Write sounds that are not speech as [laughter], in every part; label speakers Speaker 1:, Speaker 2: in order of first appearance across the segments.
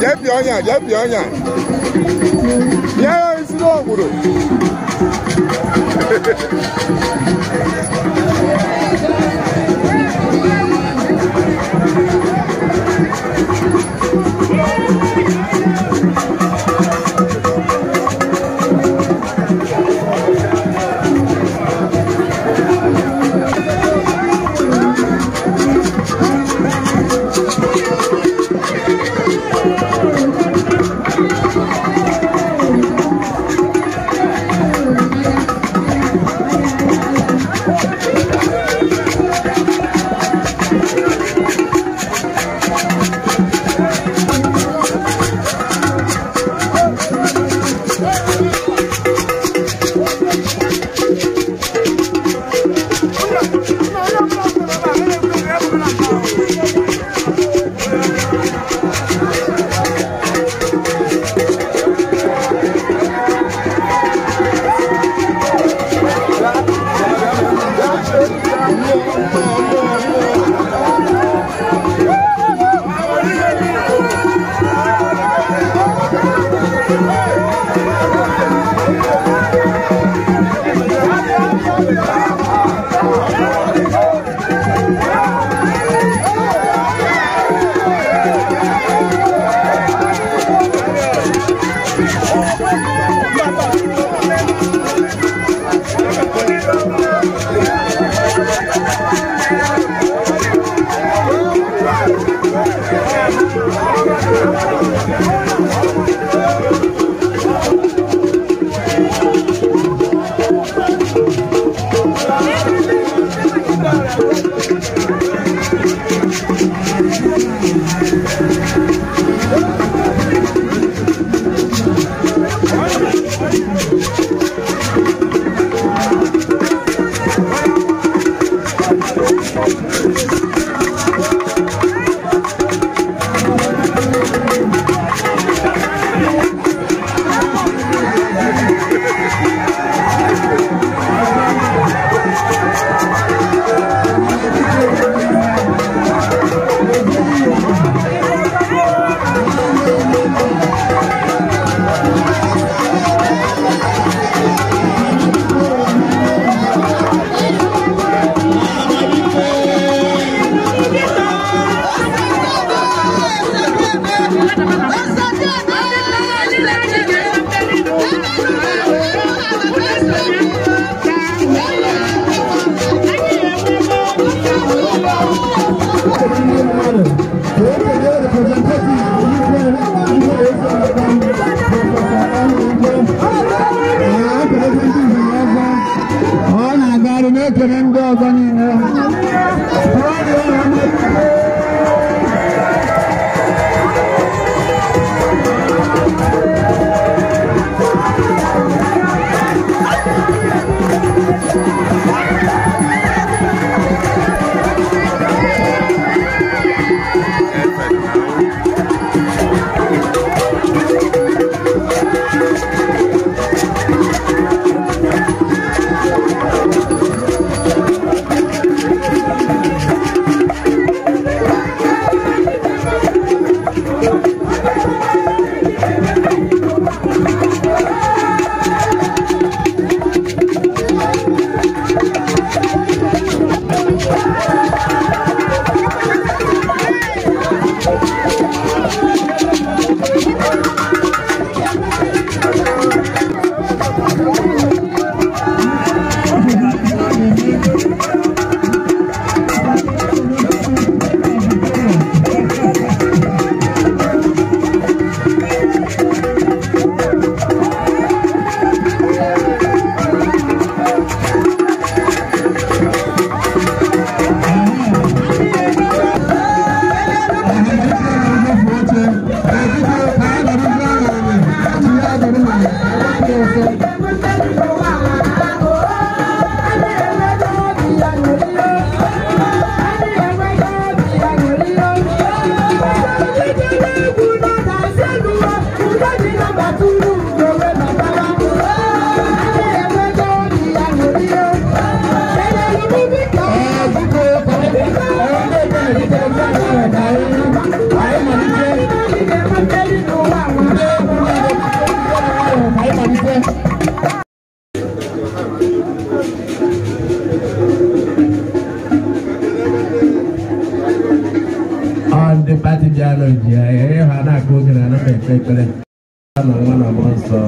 Speaker 1: Yep, yanya, yep, yanya. Yeah, it's not good. Gracias. [laughs]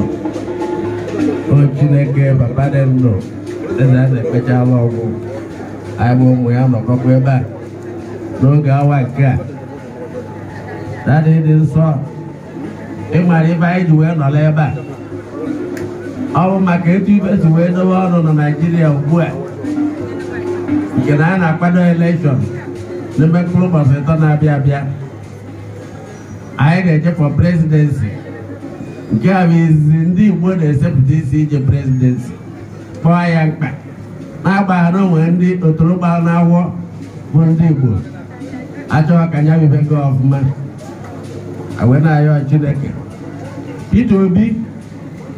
Speaker 2: o chineke papa dị ndụ eze a na-ekpechala e ọgwụ anyị bụ ụmụ ya nọkọkwa ebe a n'oge awa nke a dadị dị nsọ ị mara ibe anyị ji wee nọrọ ebe a ọ bụ maka etu ibe si wee dowe ọnụ na naijiria ugbu a nke na a na-akwado elekshọn n'ime mkpụrụ ụbọchị ịtọ na-abịa abịa anyị na-eje fọ prezidensi nke a bụ izizi ndị Igbo na-esepụta isi ije prezidensị kpọọ ya mkpa na-agbaghara onwe ndị otorogba na-awọ bụ ndị Igbo achọghị ka ya bibe gị ọfụma ayọ Chineke Peter Obi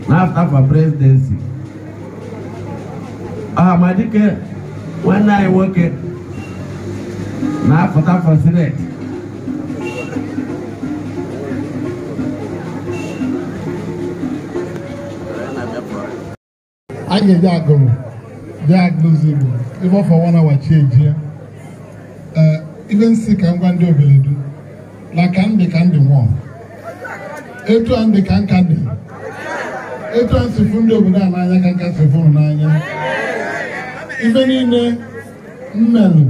Speaker 2: na-afta for prezidensị ọhamadike nwanne anyị nwoke na-afụta for sineti a ga-eji
Speaker 3: agụrụ bịa agụzi Igbo ebe ọ fọ one eji chieji ya ee ibe nsị ka ngwa ndị obeledu na ka ndị ka ndị nwụọ etu a ndị ka nka dị etu a nsịfụ ndị obodo a n'anya ka nka nsịfụrụ n'anya ife niile mmelụ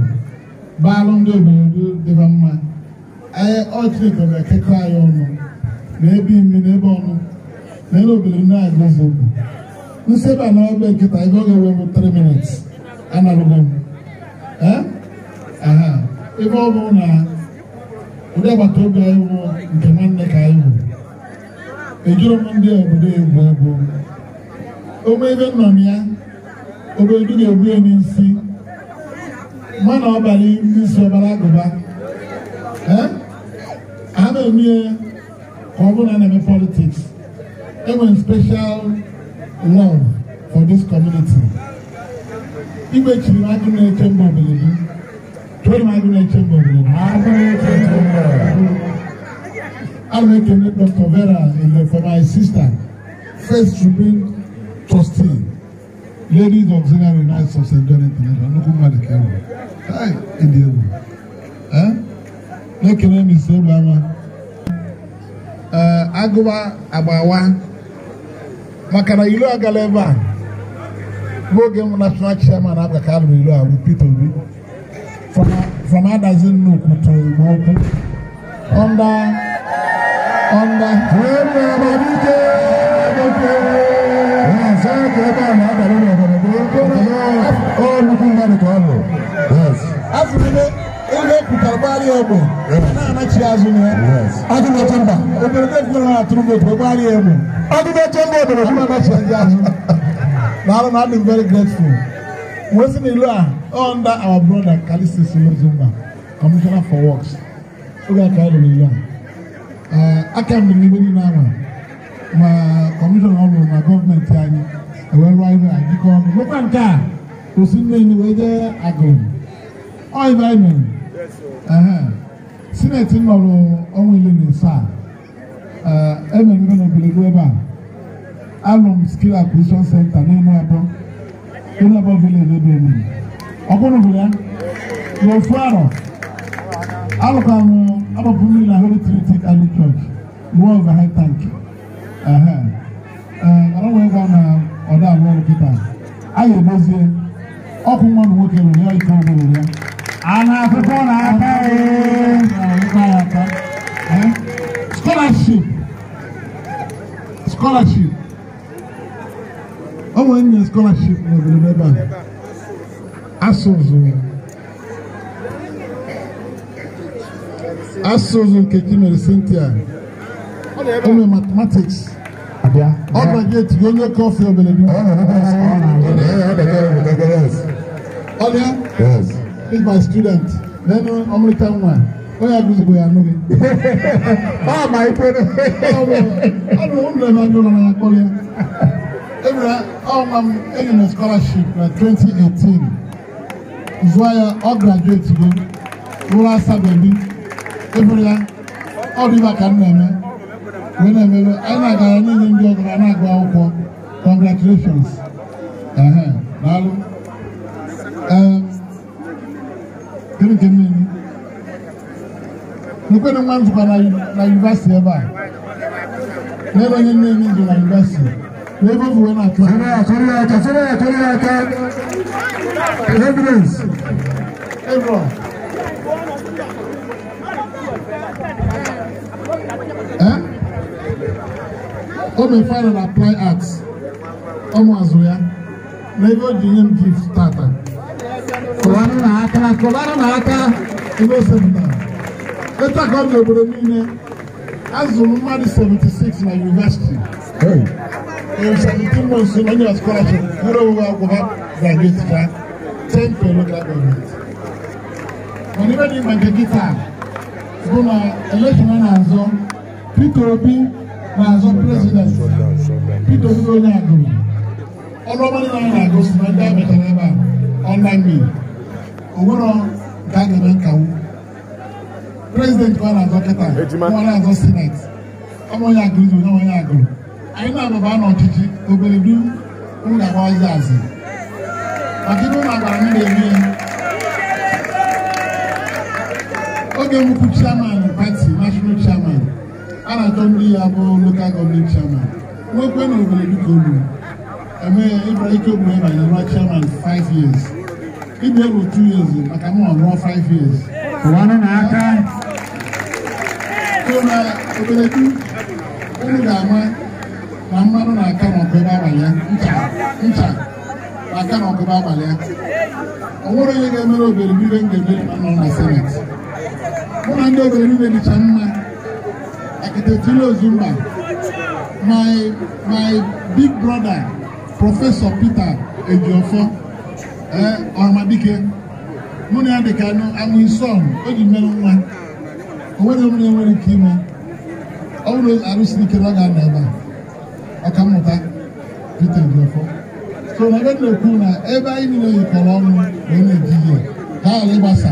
Speaker 3: baalụ ndị obodo dịba mma anyị ọchịkọ ga-ekekọ anyị ọnụ na ebe ime na ebe ọnụ na ebe obodo na-agụzi Igbo nsebe a na-egbe nkịta ego ga-ewe 3 minutes anarụgo m aha ebe ọ bụ na ụdị agbata obi anyị bụ nke nwanne ka anyị bụ ejuru m ndị obodo egwu egwu ome ebe nọ na ya obodo ga-egbu ya n'isi mana ọbara n'isi ọbara agụba a na-eme ka ọ bụrụ na na-eme politiks enwere special love for this community. Igwe chiri agụ na-eche mba obilili. Tụrụ m agụ na-eche mba obilili. Agụ na-eche mba obilili. A na-ekele Dr. Vera Ile for my sister, first Tribune trustee, ladies auxiliary knights of St. John International, nnukwu mmadụ ka ewu. Hai, ịdị egwu. Na-ekele m isi egbe ama. Agụba agbawa maka na ilu agala ebe a noge m national chairman na ka alụrụ ilu a bụ Peter Obi from Adazi Nnukwu to Igbo under under afọ ebe ekwutara gbara egbe na-anachi azụ na ya adịghị atụrụ Abuja Chamber I'm very grateful. Wetin ìlú à under our brother Kalisi Silozumba, Commissioner for Works. Oge aka ịlụ n'ìlú à. Aka mgbe n'igbe niile ama ma kọmishọna ọrụ na gọọmenti anyị ewee rụọ ihe a jikọ ọnụ. Nwekwa nke a osi mmiri wee jee agụụ. Ọ ibe anyị mere. Sineti nọrọ ọnwa ile na ise emeghere na ebelego ebe a alụm m skill acquisition center n'elu abụọ n'elu abụọ village ebe emere ọkpụrụ bụ ya n'ofu arọ alụka m mmiri na Holy Trinity Early Church rụọ overhead tank mara wee gwa na ọda alụ ọrụ a ga-edozie ọkụ nwa nwoke nwere ya ike ya a na ya scholarship ọmọ yẹn nya scholarship na ọbẹrẹ bẹẹ báyìí asọzọ asọzọ nkeji mẹrẹ cynthia ọmọ mathematics ọgbà gate yóò nyẹ kọfí ọbẹrẹ bi ọdẹ big my student lẹnu ọmọlẹta nwa wọ́n yà dùsùn bóyá nù mí. báwa máa yí pé ní. ọ̀nà òun lè máa dùn lọ́nà àkọlẹ̀. ebile ọ̀hún ma m enyi na scholarship na 2018 zuwaya ọ graduate go rụrụ asabe bi ebile ya ọ dị maka m na-eme wee na-emebe anyị na-agara n'inye ndị ọgara na-agụ akwụkwọ congratulations daalụ gịnị ka m na-eme Nnipa no nwan tukwa na yunivasiti ebe a. N'ebe onye nne nne nje na yunivasiti. Wee bofu wee na-atụ. Sọrọ ya sọrọ ya aka sọrọ ya sọrọ ya aka.
Speaker 1: Evidence.
Speaker 3: Ebro. Ọ bụ final apply arts. Ọ mụ azụ ya. N'ebe o ji nye m gift tata. Kụwara na aka kụwara na aka. Ebe o sepụtara. Later got to the Obodomine. Azụ mmadụ 76 University. Hey, In 17 months, so many scholarship. Buru ụwa akwụkwọ graduate ka 10 to local government. Mana ibe dị maka gịta bụ na elekshọn na-azọ Peter Obi na-azọ president Peter Obi bụ onye agụrụ. Ọnụ ọma niile anyị na-agụ si na ndị a mechara ebe a ọnla mmiri. O nwere ga-aga eme nkawu. President ọ na-azọ kịta na-azọ sineti ọmụnye agụzi onye onye agụrụ anyị na-abụba n'ọchịchị obere du ngagba ọzọ azị maka ibe ụlọ agbara eme ya oge mbukwu chairman pati national chairman a na-achọ ndị ya bụ lokal gọọmenti chairman nwekwe na obere du ka eme ike ogbere chairman 5 years ịbụ ego 2 years maka m ọrụọ 5 years ruo na oberetu ga-ama na mmanụ na-aka n'ọkụ ebe abalị ncha na-aka n'ọkụ ebe abalị ya ọ nwere onye ga-emere obere ibe m ga-emere ma nọ na seneti mụ na ndị obere ibe dịcha mma akitetiri ozumba my my big brother prọfesọ Peter Ejiofọ ee ọhamadike mụ na ya dịka anụ amụ isi ọhụ o ji mmerụ nwa wani mu ne wani kima awuro aru siri kira ga na ba aka mụta peter jefo so na ebe na-ekwu na ebe anyị niile yikọrọ ọnụ wee na-eji ihe ha ala ịgbasa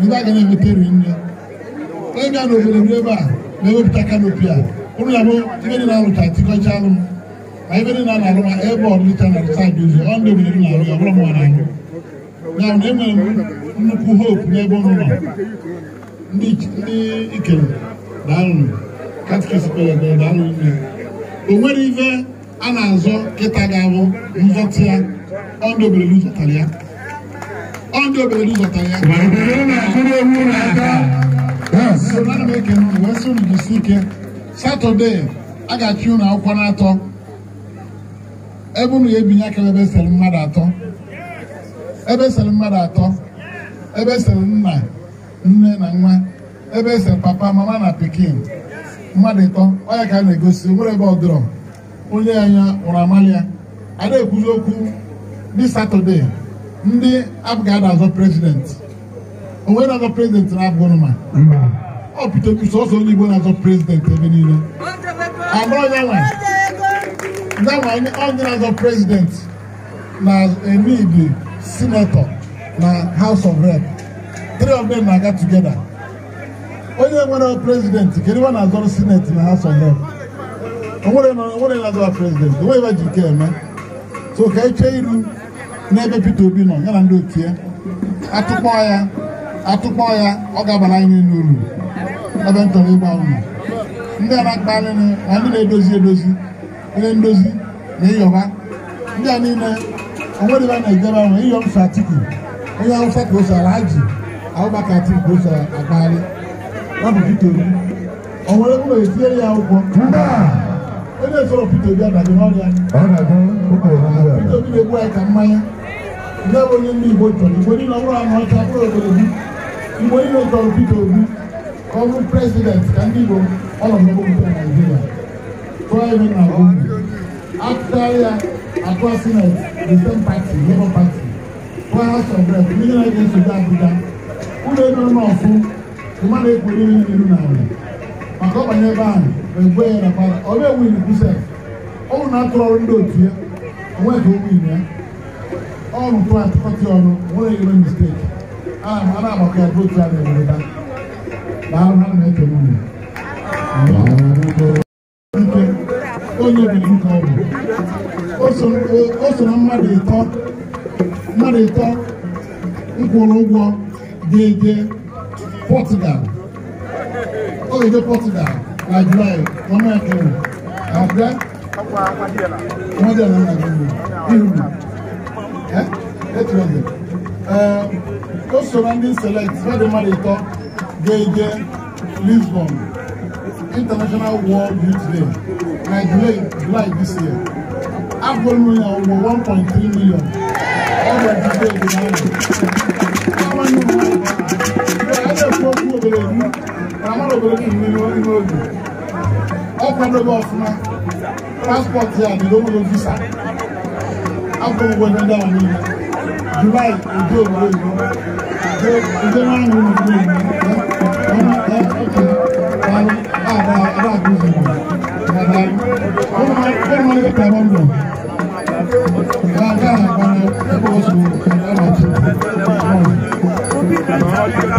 Speaker 3: ndị a ga na-enweta eri nne onye bịa n'obodo m ebe a na-ewepụta kanopi a ụlụ ya bụ ibe dị na-alụta tikọcha alụ m ma ibe dị na-alụ ma ebe ọdịcha na saịdị ụzọ ọ ndị obodo na-alụ ya ọbụrụ m na-alụ ya bụ na enwere m nnukwu hope n'ebe ụlọ ndị ikere daalụ katikisi pelebe daalụ nne o nwere ife a na-azọ kịta ga-abụ nzọtị ya ọndụ zọtara ya ọndụ zọtara ya ana m ekene ụnụ wee sị unu ike satọde a ga-achị ụnụ akwụkwọ n'atọ ebe unu ga-ebinye aka ebe esere mmadụ atọ ebe esere mmadụ atọ ebe esere nna nne na nwa ebe ese papa mama na pikin mmadụ ịtọ onye ka a na-egosi nwere ebe ọdụrọ onye anya ụra amalia a ekwuzi okwu di satọde ndị abụghị ada azọ prezidenti onwe na-azọ prezidenti na-abụghị ma ọ pụtara sọsọ onye igbo na-azọ prezidenti ebe niile abụrụ nyanwa onye na-azọ prezidenti na enidi sinetọ na haus of rep three of them na-aga together onye nwere president kedu iwe na-azọrọ senate na house of lords onwere na-azọrọ president onwe ebe ji ike eme so ka echee iru n'ebe Peter Obi nọ ya na ndị otu ya atụkpọ ya atụkpọ ya ọ ga-abara anyị n'uru ebe ntọrọ ịgba ụlọ ndị a na-akpa anyị na ndị na-edozi edozi onye ndozi na ịyọba ndị a niile onwere ebe a na-ejebe ahụ ịyọ mfe atiki onye awụsa ka o sara ji ati bosa agbali ya Peter Obi ọ nwere ya akwụkwọ onye esoro Peter Obi n'ọrịa Peter Obi na-egbu anyị ka mmanya bụ onye ndị Igbo chọrọ Igbo niile ọbụrụ ọcha obodo Igbo niile Peter Obi ka ọ ka ndị Igbo ọrụ Naijiria tụọ na ya atụọ sineti the same party Labour Party tụọ House of ndị na-eji ụlọ ebe nọ n'ọfụ mmadụ ekwere ihe n'iru na ala maka ọbanye ebe ahụ egwe ya na para ọ bịa win ọ bụ na-atụrụ ọrụ ndị otu ya onwe ka o win ya ọ bụ ọrụ tụrụ atụkọtị ọnụ nwere ebe mistake, a na-agbakọ ya bụ otu a na-ewere taa daalụ ha na-ekele unu onye bụ nke ọ bụ o so na mmadụ ịtọ mmadụ ịtọ nkwụrụ ụgwọ déédéé Portugal olùdó Portugal Nigeria. wọn náà kí wọn àbẹ wọn dẹ̀ lọ́nà àgbẹ̀wò ihu ẹ eight hundred ẹ ó sọ̀rọ̀ ndị select wọ́n dẹ̀ mmadụ ịtọ déédéé Lisbon International World Youth Day Nigeria July this year agụrụ ya ụgwọ 1.3 million ọ bụ ọdịdị ego n'ahụ olórí nínú nínú òdì ọ̀pọ̀lọpọ̀ ọ̀fúnma passport yà ni lówó ló visa agbóhùnwó dandan àwọn ènìyàn July ojú òwúrọ̀ ìlú ojú ojú máa ń wọnú ìlú ìlú ọmọ ẹ ọkẹ ọmọ àbá àbá àgbóhùn ìlú
Speaker 1: bàbá ọmọ ọmọ ẹgbẹ́ tàbá ń bọ̀ bàbá àgbà ẹgbẹ́ wọ́n ti wọ́n ọmọ àti ọmọ.